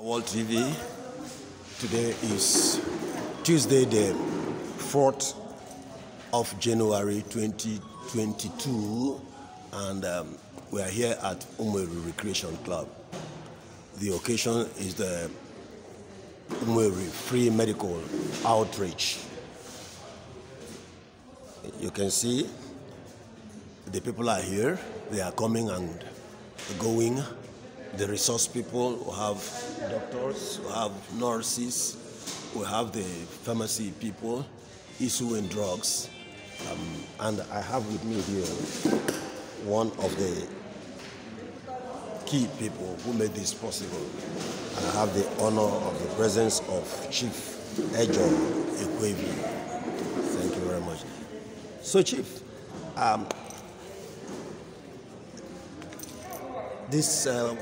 World TV. Today is Tuesday, the 4th of January 2022, and um, we are here at Umweru Recreation Club. The occasion is the Umweru Free Medical Outreach. You can see the people are here, they are coming and going the resource people, we have doctors, we have nurses, we have the pharmacy people issuing drugs. Um, and I have with me here one of the key people who made this possible. And I have the honor of the presence of Chief Ejo Ekwevi. Thank you very much. So, Chief, um, this um,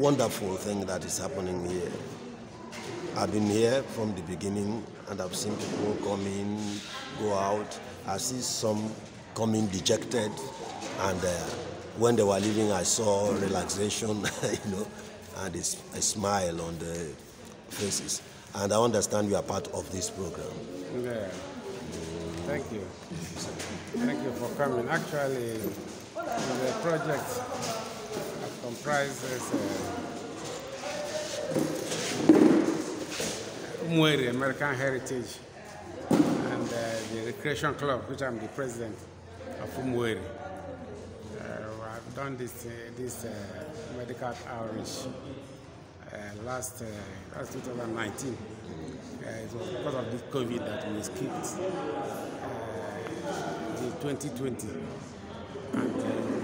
wonderful thing that is happening here. I've been here from the beginning and I've seen people come in, go out. I see some coming dejected and uh, when they were leaving I saw relaxation, you know, and a, a smile on the faces. And I understand you are part of this program. Yeah. Thank you. Thank you for coming. Actually, the project comprises uh, eh. American Heritage and uh, the Recreation Club, which I'm the president of Mwere. Uh, eh, I've done this, this medical outreach last, last 2019. it was because of this COVID that we skipped the 2020. And,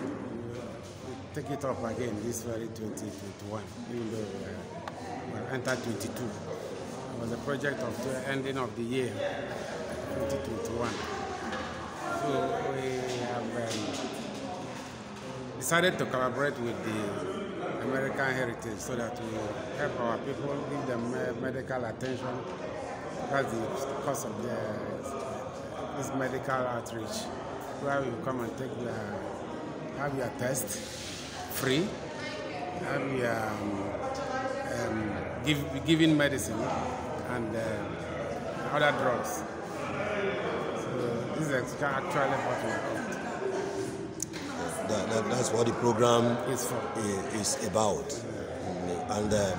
take it up again this very 2021, even though uh, we are entered 22. It was a project of the ending of the year, 2021. So we have um, decided to collaborate with the American Heritage so that we help our people, give them medical attention. because the cost of the, this medical outreach, where you come and take the have your test free. And we um, are um, give, giving medicine and uh, other drugs. So this is actually what we that, that, that's what the program is, is about. And uh,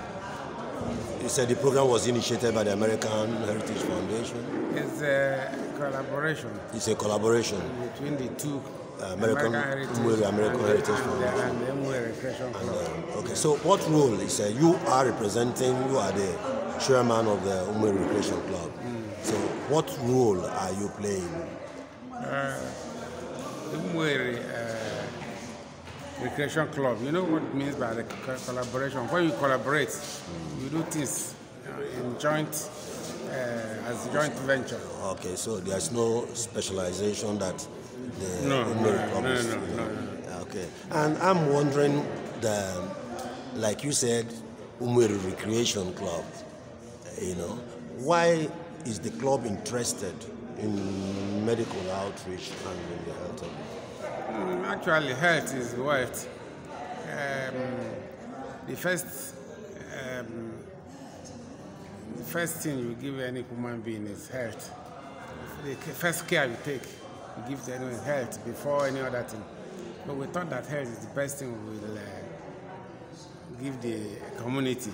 you said the program was initiated by the American Heritage Foundation. It's a collaboration. It's a collaboration. Between the two American, American Heritage, American uh, Heritage Foundation. And, uh, okay, so what role is uh, you are representing? You are the chairman of the Umwe Recreation Club. Mm. So what role are you playing? Uh, Umwe uh, Recreation Club. You know what it means by the collaboration. When you collaborate, mm. you do things uh, in joint. Uh, as joint venture. Okay, so there's no specialization that the no, no, No, no, no, Okay. And I'm wondering, the, like you said, Umweru Recreation Club, you know, why is the club interested in medical outreach and in the health of mm, Actually, health is what um, the first um, the first thing you give any human being is health. The first care you take Give gives anyone health before any other thing. But we thought that health is the best thing we will uh, give the community.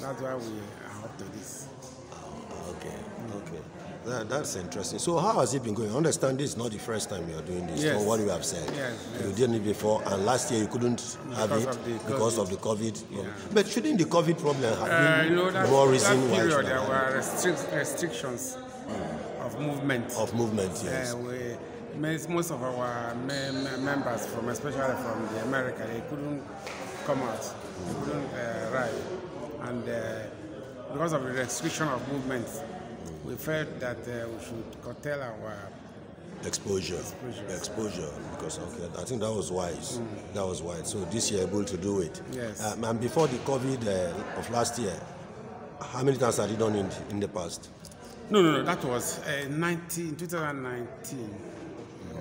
That's why we are up to this. Ah, okay, okay. That, that's interesting. So how has it been going? I understand this is not the first time you are doing this. Yes. what you have said, yes, yes. you did it before, and last year you couldn't because have it because of the COVID. Yeah. But shouldn't the COVID problem have uh, been you know, that, more reason that period why? There were restric- restrictions. Mm of movement. Of movement, yes. Uh, we, most of our members, from especially from the America, they couldn't come out, they couldn't uh, ride, and uh, because of the restriction of movement, we felt that uh, we should curtail our exposure, exposure, exposure because okay, I think that was wise. Mm. That was wise. So this year able to do it. Yes. Um, and before the COVID uh, of last year, how many times have you done in, in the past? No, no, no. That was uh, 19, 2019.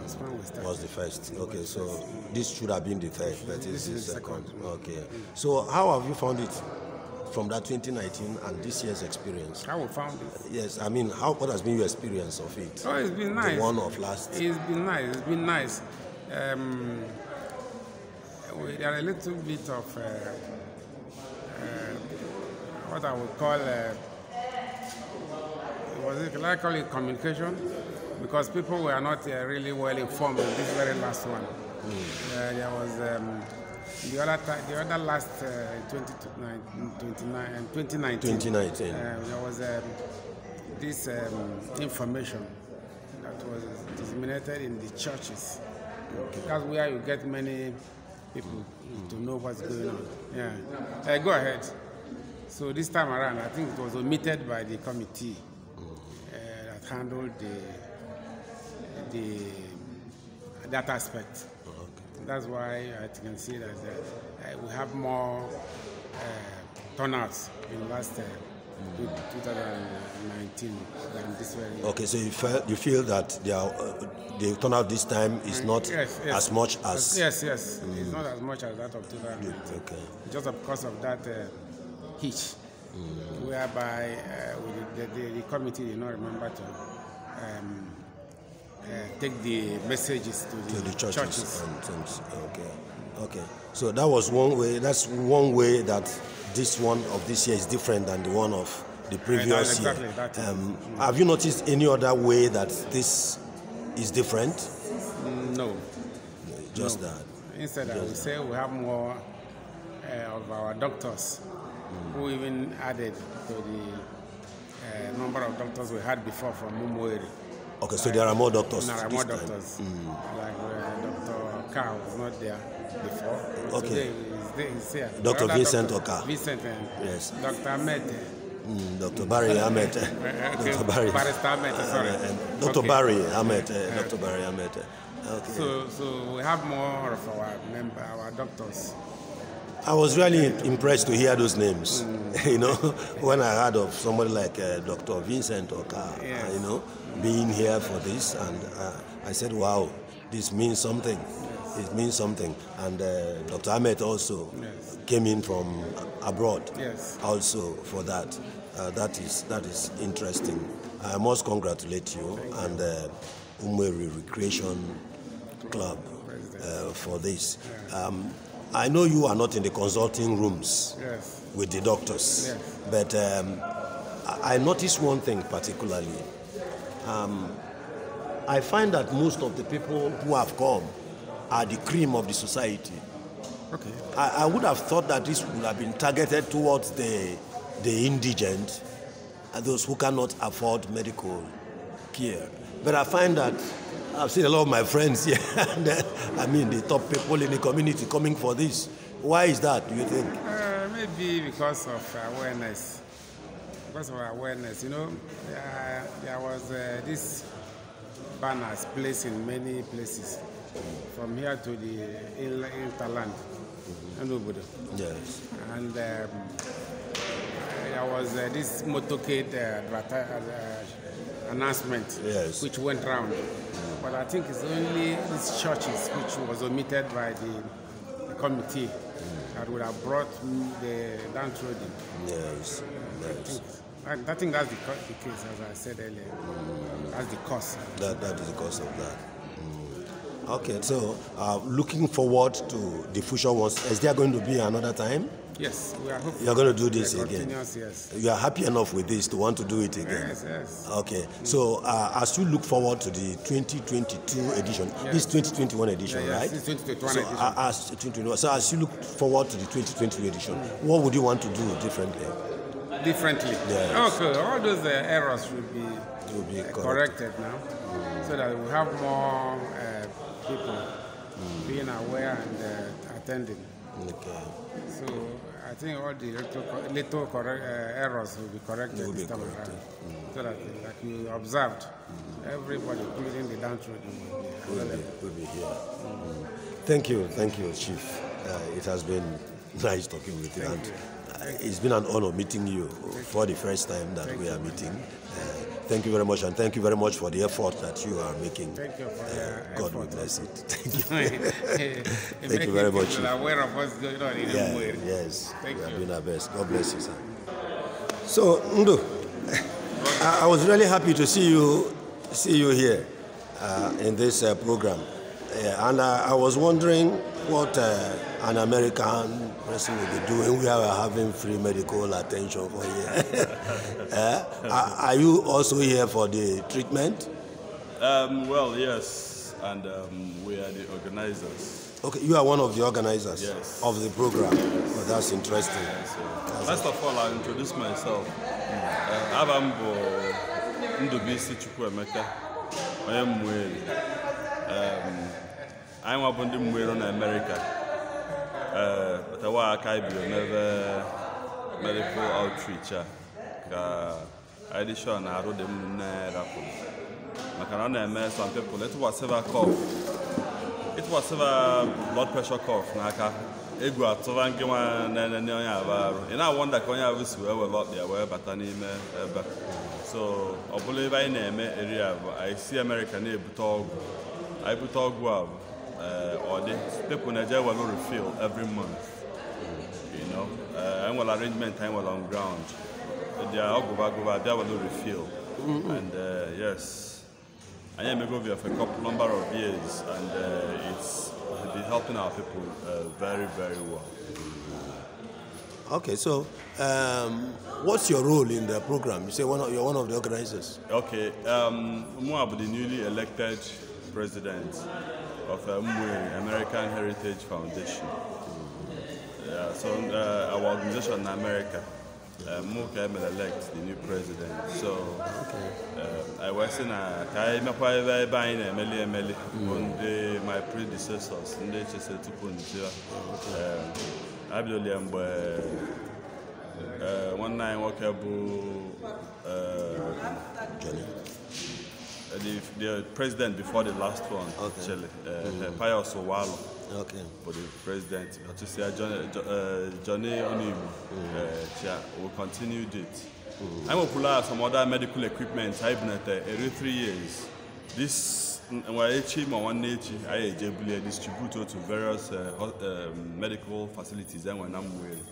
Was, was the first okay so this should have been the first but it's the second, second. okay so how have you found it from that 2019 and this year's experience how we found it yes i mean how what has been your experience of it oh it's been nice the one of last it's been nice it's been nice um we are a little bit of uh, uh, what i would call uh, was it, likely I call it communication? Because people were not uh, really well informed in this very last one. Mm. Uh, there was um, the other the other last uh, 20, 29, um, 2019. 2019. Uh, there was um, this um, information that was disseminated in the churches. Okay. That's where you get many people hmm. to know what's going on. Yeah. Uh, go ahead. So this time around, I think it was omitted by the committee handled the, the, that aspect. okay. That's why I can see that uh, we have more uh, turnouts in last uh, 2019 than this year. Okay, so you feel, you feel that they are, uh, the turnout this time is not yes, yes. as much as... Yes, yes, mm. it's not as much as that of 2019. Okay. Just because of that uh, hitch mm. whereby uh, the, the, the, committee did not remember to um, uh, take the messages to the, to the churches. churches. And, and, okay. Okay. So that was one way. That's one way that this one of this year is different than the one of the previous exactly year. Um, Have you noticed any other way that this is different? No. just no. that. Instead, just I would say we have more uh, of our doctors who even added to the uh, number of doctors we had before from Mumueri. Okay, so like, there are more doctors. There are more doctors. Mm. Like uh, Dr. Carr was not there before. Okay. Today he's, here. Dr. Vincent Oka. Vincent and uh, yes. Dr. Ahmed. Mm, Dr. Barry uh, Ahmed. okay. Dr. Barry. Barrister Ahmed, uh, sorry. Uh, Dr. Okay. Barry Ahmed. Dr. Barry Ahmed. Okay. So, so we have more of our member, our doctors. I was really impressed to hear those names. Mm. you know, when I heard of somebody like uh, Dr. Vincent Okar, yes. you know, being here for this, and uh, I said, wow, this means something. Yes. It means something. And uh, Dr. Ahmed also yes. came in from abroad, also for that. Uh, that is that is interesting. I must congratulate you Thank and uh, Umweri Recreation Club uh, for this. Um, I know you are not in the consulting rooms yes. with the doctors, yes. but um, I noticed one thing particularly. Um, I find that most of the people who have come are the cream of the society. Okay. I, I would have thought that this would have been targeted towards the, the indigent and uh, those who cannot afford medical care. But I find that I've seen a lot of my friends here. I mean, the top people in the community coming for this. Why is that, do you think? Uh, maybe because of awareness. Because of awareness, you know, there was uh, this banners placed in many places, from here to the hinterland, and nobody. Yes. And um, there was uh, this motorcade uh, uh announcement, yes. which went round but I think it's only these churches which was omitted by the, the committee that would have brought the downtrodden. Yes, yes. I think, I think that's the, the, case, as I said earlier. Mm. That's the cause. That, that is the cause of that. Mm. Okay, so uh, looking forward to the future ones. Is there going to be another time? Yes, we are hopeful. You're going to do this again. Yes. You are happy enough with this to want to do it again. Yes, yes. Okay. Mm. So uh, as you look forward to the 2022 edition, yes. this 2021 edition, yeah, yes, right? This 2021 so, edition. Uh, as 2021. So as you look forward to the 2022 edition, mm. what would you want to do differently? Differently. Yes. Okay. All those uh, errors should be, will be uh, corrected. corrected. now, mm. so that we have more uh, people hmm. being aware and uh, attending. Okay. So I think all the little, little uh, errors will be corrected will be time corrected. around. Mm. So that, like you observed, mm. everybody, including the downtrodden, will be, will be here. Mm. Thank you, thank you, Chief. Uh, it has been nice talking with you. Thank and you. Uh, it's been an honor meeting you thank for the first time that thank we are meeting. Uh, Thank you very much, and thank you very much for the effort that you are making. Thank you for uh, God will bless it. Thank you. thank you very much. aware of what's going on in yeah, Yes, thank we you. are doing our best. God bless you, sir. So, Ndu, I, I was really happy to see you, see you here uh, in this uh, program. and I was wondering what uh, an American person will be doing. We are having free medical attention for you. uh, are, are you also here for the treatment? Um, well, yes, and um, we are the organizers. Okay, you are one of the organizers yes. of the program. Well, that's interesting. Yes, First of all, i introduce myself. Uh, Chukwemeka. I am Mweli. Um, anyị nwa bụ ndị mgbe nọ na Amerịka ee patawa aka anyị bidoro n'ebe medical outreach a ka anyị sure na arụ dị m nne anyị maka na ọ na-eme some people ịtụkwasịba cough ịtụkwasịba blood pressure cough n'aka egwu atụba nke nwa na-enene onye aba arụ ị na-awọnda ka onye abụ si wee were ọkpịa wee bata n'ime ebe so ọ bụla ebe anyị na-eme eri abụ anyị si Amerịka na-ebute ọgwụ anyị bute ọgwụ abụ uh, or the people in Nigeria will refill every month. You know, uh, and well arrangement time well on ground. They are all go back, go back, they will refill. Mm-hmm. And uh, yes, I am a for a couple number of years, and uh, it's been helping our people uh, very, very well. Okay, so um, what's your role in the program? You say one of, you're one of the organizers. Okay, um, Moab, the newly elected president of the uh, American Heritage Foundation. Yeah, so uh, our organization in America, uh, Muka elect the new president. So uh, I was in a Kaima Paiva buying a Meli Meli one day my predecessors, Ndeche Setupunja, uh, Abdul Mbe, uh, one nine walkable. Uh, the, the president before the last one, okay. actually, uh, mm. Pius Owalo. Okay. For the president, to say Johnny, Johnny will continue it. Mm. I'm out some other medical equipment. I've been at every three years. This Nwaechi Mawanechi I distribute to various uh, um, medical facilities and when I'm with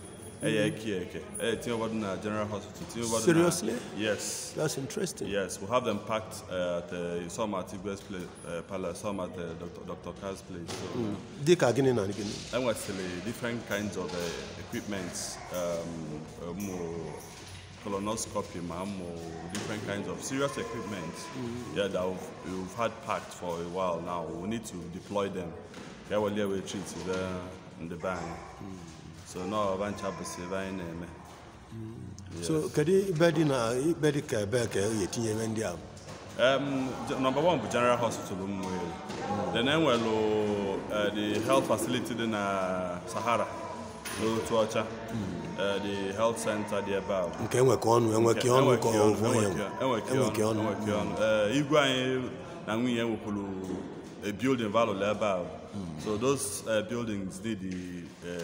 ẹyẹ ẹkí ẹkẹ ẹ tí wọn na general hospital uh, seriously yes that's interesting yes we have them packed uh, at uh, some at Igbe's place uh, palace some at uh, Dr. Dr. Carr's place. So, mm. dika gini na gini. ẹ wọ́n sẹlẹ̀ different kinds of uh, equipments um, um, colonoscopy ma mo different kinds of serious equipment mm. yeah, that we've, we've had packed for a while now we need to deploy them. yẹ wọlé ẹ wẹ treat in the bang. Mm so mm. na I want to anyị na-eme so kedu ibe na ibe ka ka um, general hospital mmụọ then enwelu uh, the health facility in na uh, sahara mm. uh, the health center dị mm. na a building valo ebe so those uh, buildings need the uh,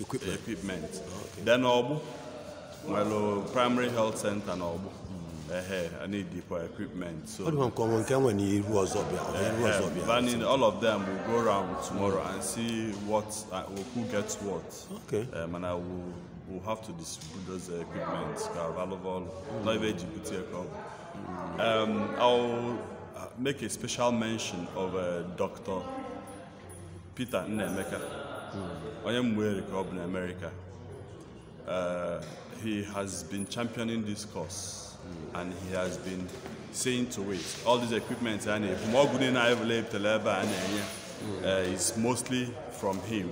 equipment. equipment. Oh, okay. Then Obu, well, primary health center na Obu. Hmm. I need for equipment. So, all of them will go around tomorrow and see what uh, who gets what. Okay. Um, and I will will have to distribute those equipment. Carvalhoval, mm. not Um, I'll uh, make a special mention of uh, Dr. Peter Nemeka. I am ka ọ bụ america uh, he has been championing this cause mm. and he has been saying to it all these equipment and uh, it's mostly from him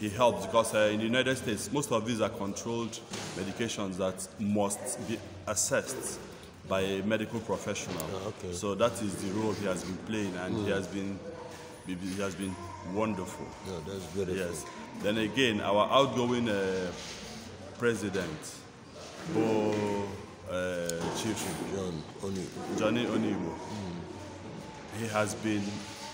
he helps because uh, in the United States, most of these are controlled medications that must be assessed by a medical professional. Ah, okay. So that is the role he has been playing, and mm. he has been he has been wonderful. Yeah, that's beautiful. Yes. Then again, our outgoing uh, president, Bo uh, Chief John Onibo. Johnny Onibo. Mm. He has been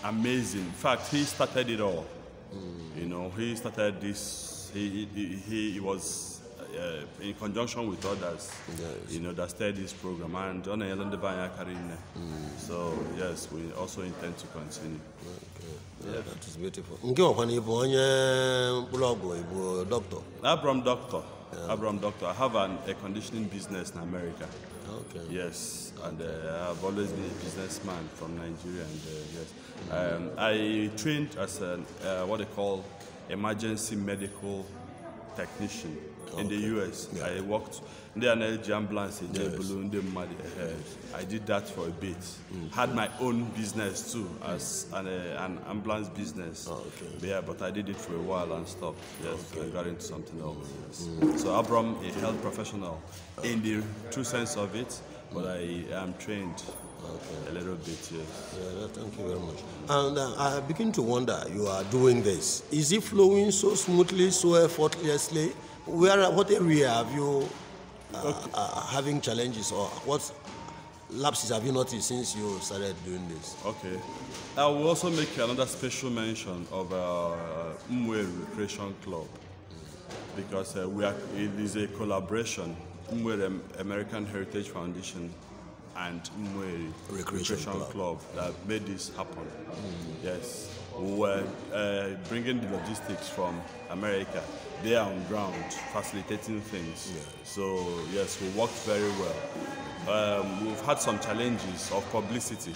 amazing. In fact, he started it all. Mm. You know, he started this. He, he, he was uh, in conjunction with others, yes. you know, that started this program. And John Ellen Devine mm. So, yes, we also intend to continue. Okay. Yeah, That is beautiful. doctor? Abram Doctor. Yeah. Abram Doctor. I have an, a conditioning business in America. Okay. Yes, and uh, I've always been a businessman from Nigeria. And uh, yes, mm. um, I trained as an, uh, what they call emergency medical technician okay. in the US. Yeah. I worked ndị a na ambulance eje ebulu eh, eh, I did that for a bit. Mm. Had my own business too as an, uh, an ambulance business. Oh, okay. But yeah, but I did it for a while and stopped. Yes, okay. I got into something else. Mm, yes. Mm. So Abram, a health professional in the true sense of it, but I am trained Okay. A little bit, yes. Yeah, thank you very much. And uh, I begin to wonder, you are doing this. Is it flowing so smoothly, so effortlessly? Where, what area have you uh, okay. Uh, having challenges or what lapses have you noticed since you started doing this? Okay. I will also make another special mention of uh, Mwe Recreation Club because uh, we are, it is a collaboration Mwe American Heritage Foundation and Mwe Recreation, Recreation Club. Club. that made this happen. Mm. Yes. We were uh, bringing the logistics from America there on ground, facilitating things. Yeah. So yes, we worked very well. Um, we've had some challenges of publicity.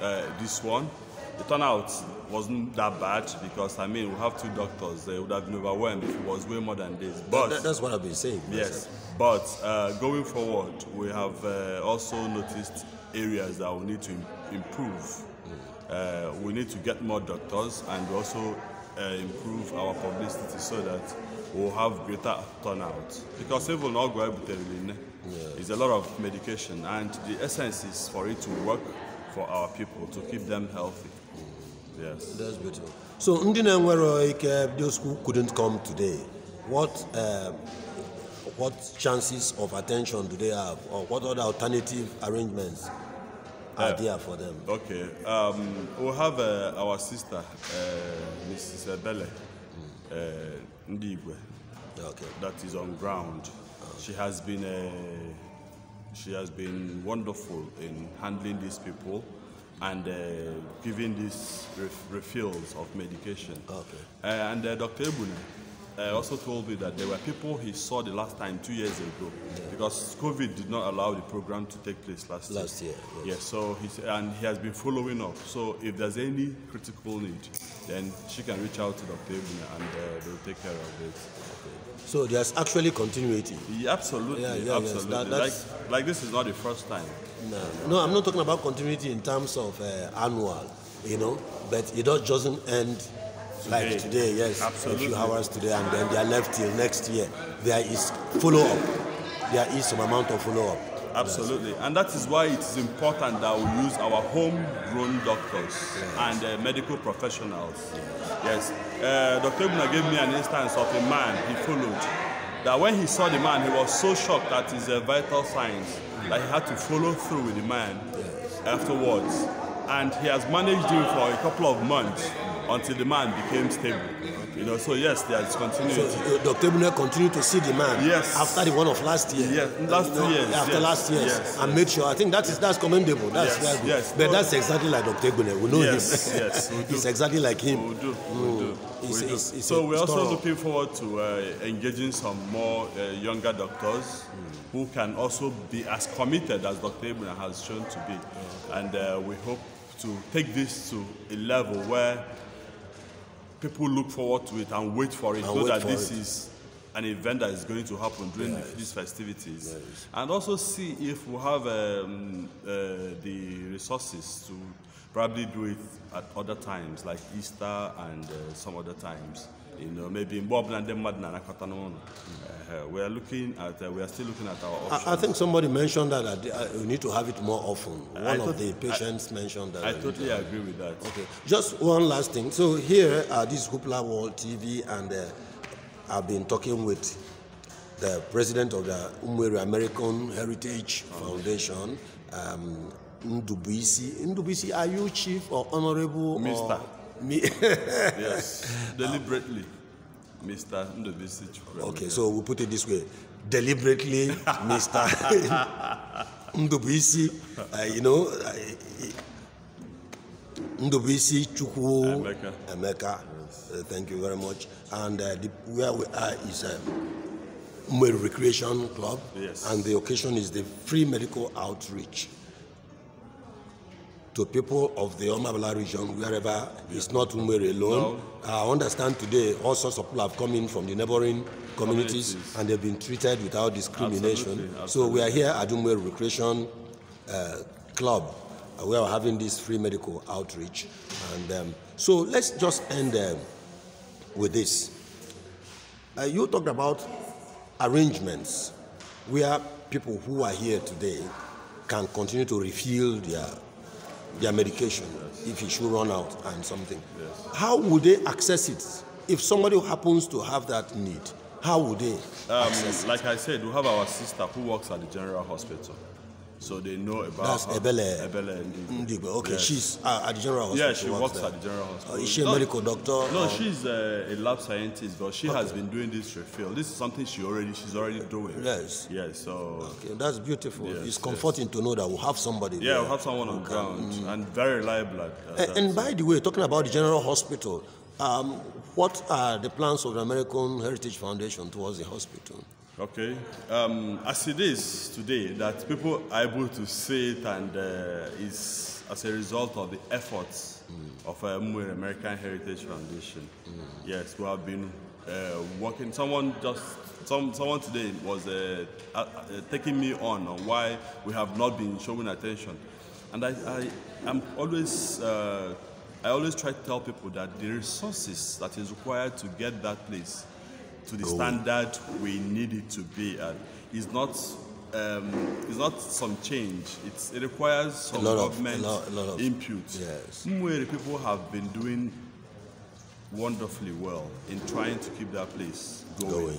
Uh, this one, the turnout wasn't that bad because I mean we have two doctors. They would have been overwhelmed if it was way more than this. But that, that's what I've been saying. Yes, but uh, going forward, we have uh, also noticed areas that we need to improve. Mm. Uh, we need to get more doctors and also uh, improve our publicity so that will have greater turnout because even ọgwụ ebuterele It's a lot of medication and the essence is for it to work for our people to keep them healthy. Mm. Yes. That's beautiful. So ndị na-enwere ike those who couldn't come today, what um, what chances of attention do they have or what other alternative arrangements are uh, there for them? Okay. Um, we have uh, our sister, uh, Mrs. Bele. Mm. Uh, Okay. That is on ground. Okay. She has been a, uh, she has been wonderful in handling these people and uh, giving these ref refills of medication. Okay. Uh, and uh, Dr. Ebune, uh, also told me that there were people he saw the last time two years ago yeah. because COVID did not allow the program to take place last, year. Last year. Yes. so he's, and he has been following up. So if there's any critical need, then she can reach out to Dr. Ebene and uh, they'll take care of it. So there's actually continuity. Yeah, absolutely. Yeah, yeah, absolutely. Yes. That, like, like this is not the first time. No, no, I'm not talking about continuity in terms of uh, annual, you know, but it doesn't end like today, today yes, Absolutely. a few hours today, and then they are left till next year. There is follow up. There is some amount of follow up. Absolutely. Yes. And that is why it is important that we use our homegrown doctors yes. and uh, medical professionals. Yes. Uh, Dr. Ibuna gave me an instance of a man he followed. That when he saw the man, he was so shocked at his uh, vital signs that he had to follow through with the man yes. afterwards. And he has managed him for a couple of months until the man became stable. You know, so yes, there is continuity. So uh, Dr. Ebune continued to see the man yes. after the one of last year. Yes, last two years. After yes. last year, yes. and made sure. I think that is that's commendable. That's yes. yes. But no. that's exactly like Dr. Ebune. We know yes. him. Yes, it's exactly like him. We do. We mm. do. It's, we It's, it's so we're also looking forward to uh, engaging some more uh, younger doctors mm. who can also be as committed as Dr. Ebune has shown to be, mm. and uh, we hope to take this to a level where people look forward to it and wait for it, and so that this it. is an event that is going to happen during yes. these festivities, yes. and also see if we have um, uh, the resources to probably do it at other times, like Easter and uh, some other times. You know, maybe in uh-huh. we are looking at, uh, we are still looking at our options. I, I think somebody mentioned that, that uh, need to have it more often. One I of the patients I, mentioned that. I totally agree with that. Okay, just one last thing. So here this Hoopla World TV, and uh, I've been talking with the president of the Umwere American Heritage oh. Foundation, um, Ndubisi. Ndubisi, are you chief or honorable? Mr. Or me? yes, deliberately, um, Mr. Ndovisi Chukwuemeka. Okay, so we put it this way. Deliberately, Mr. Ndovisi, uh, you know, uh, Ndobisi Chukwu Emeka. Emeka. Yes. Uh, thank you very much. And uh, the, where we are is uh, Recreation Club. Yes. And the occasion is the free medical outreach to people of the Omabala region, wherever yeah. it's not Umere alone. No. I understand today all sorts of people have come in from the neighboring communities, communities. and they've been treated without discrimination. Absolutely. Absolutely. So we are here at Umere Recreation uh, Club. Uh, we are having this free medical outreach. And um, so let's just end um, with this. Uh, you talked about arrangements where people who are here today can continue to refill their their medication yes. if it should run out and something. Yes. How would they access it if somebody happens to have that need? How would they? Um, like I said, we have our sister who works at the general hospital. so they know about That's her. Ebele. Ebele mm, Okay, yes. she's uh, at the general hospital. Yeah, she works at the general hospital. Uh, is she a no, medical doctor? No, or? she's a, a, lab scientist, but she okay. has been doing this refill. This is something she already she's already doing. Yes. Yes. So. Okay, that's beautiful. Yes, it's comforting yes. to know that we will have somebody. Yeah, we we'll have someone on ground mm. and very reliable. and, and by the way, talking about the general hospital, um, what are the plans of the American Heritage Foundation towards the hospital? Okay. Um, as it is today, that people are able to see it and uh, is as a result of the efforts mm. of uh, American Heritage Foundation. Mm. Yes, we have been uh, working. Someone just some someone today was uh, taking me on on why we have not been showing attention, and I, I am always. Uh, I always try to tell people that the resources that is required to get that place to the Go. standard we need it to be at. It's not um, it's not some change. It's, it requires some government of, a lot, a lot of, input. Yes. Mwere people have been doing wonderfully well in trying to keep that place going. going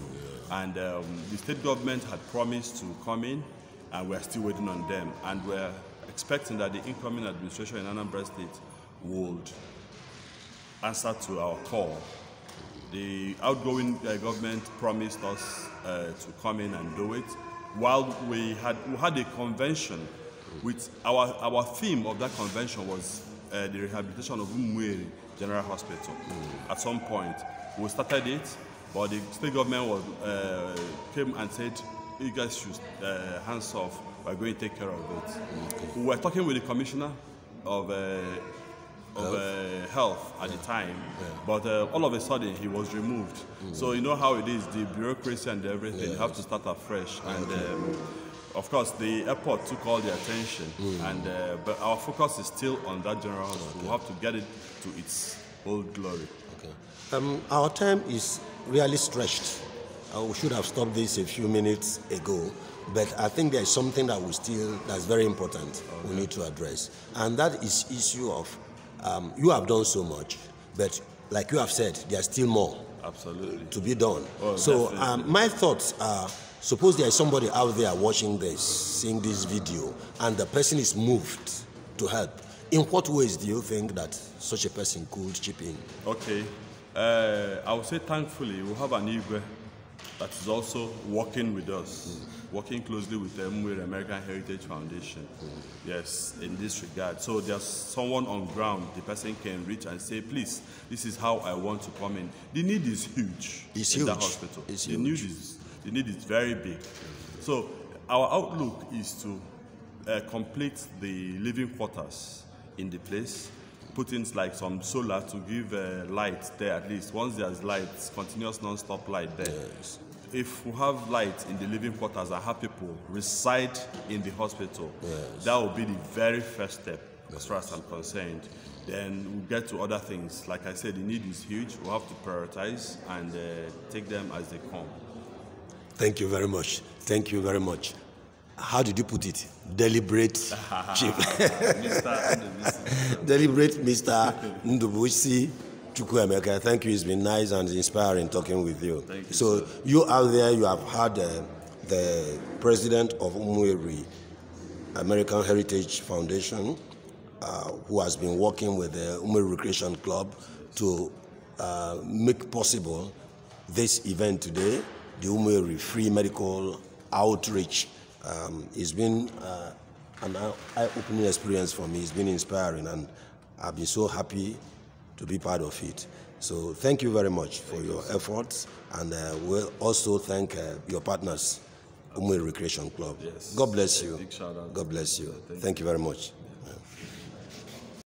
yeah. And um, the state government had promised to come in, and we're still waiting on them. And we're expecting that the incoming administration in Anambra State would answer to our call the outgoing uh, government promised us uh, to come in and do it. While we had, we had a convention, with our, our theme of that convention was uh, the rehabilitation of Umweri General Hospital. Mm. At some point, we started it, but the state government was, uh, came and said, you guys should uh, hands off, we're going to take care of it. Okay. We were talking with the commissioner of uh, of uh, health at yeah. the time. Yeah. But uh, all of a sudden, he was removed. Mm. So you know how it is, the bureaucracy and everything yeah. have to start afresh. And um, of course, the airport took all the attention. Mm. And uh, but our focus is still on that general hospital. Okay. We have to get it to its old glory. Okay. Um, our time is really stretched. I uh, should have stopped this a few minutes ago but I think there is something that we still that's very important okay. we need to address, and that is issue of um, you have done so much, but like you have said, there's still more absolutely to be done. Oh, so um, my thoughts are: suppose there is somebody out there watching this, seeing this video, and the person is moved to help. In what ways do you think that such a person could chip in? Okay, uh, I would say thankfully we have an Igwe that is also working with us. Mm working closely with the American Heritage Foundation. Yes, in this regard. So there's someone on ground the person can reach and say, please, this is how I want to come in. The need is huge it's in huge. that hospital. It's the huge. Need is, the need is very big. So our outlook is to uh, complete the living quarters in the place put in like some solar to give uh, light there at least. Once there's light, continuous non-stop light there. Yes if we have light in the living quarters, I have people reside in the hospital. Yes. That will be the very first step, yes. as far as I'm concerned. Then we'll get to other things. Like I said, the need is huge. we we'll have to prioritize and uh, take them as they come. Thank you very much. Thank you very much. How did you put it? Deliberate chief. Mr. Deliberate Mr. Ndubushi. Chukwuemeka, thank you. It's been nice and inspiring talking with you. you so sir. you out there, you have had uh, the president of Umweri American Heritage Foundation, uh, who has been working with the Umweri Recreation Club to uh, make possible this event today, the Umweri Free Medical Outreach. Um, it's been uh, an eye-opening experience for me. It's been inspiring, and I've been so happy to be part of it. So thank you very much for thank your you. efforts, and uh, we will also thank uh, your partners, Umwe Recreation Club. Yes. God bless you. God bless you. Thank, thank you very much.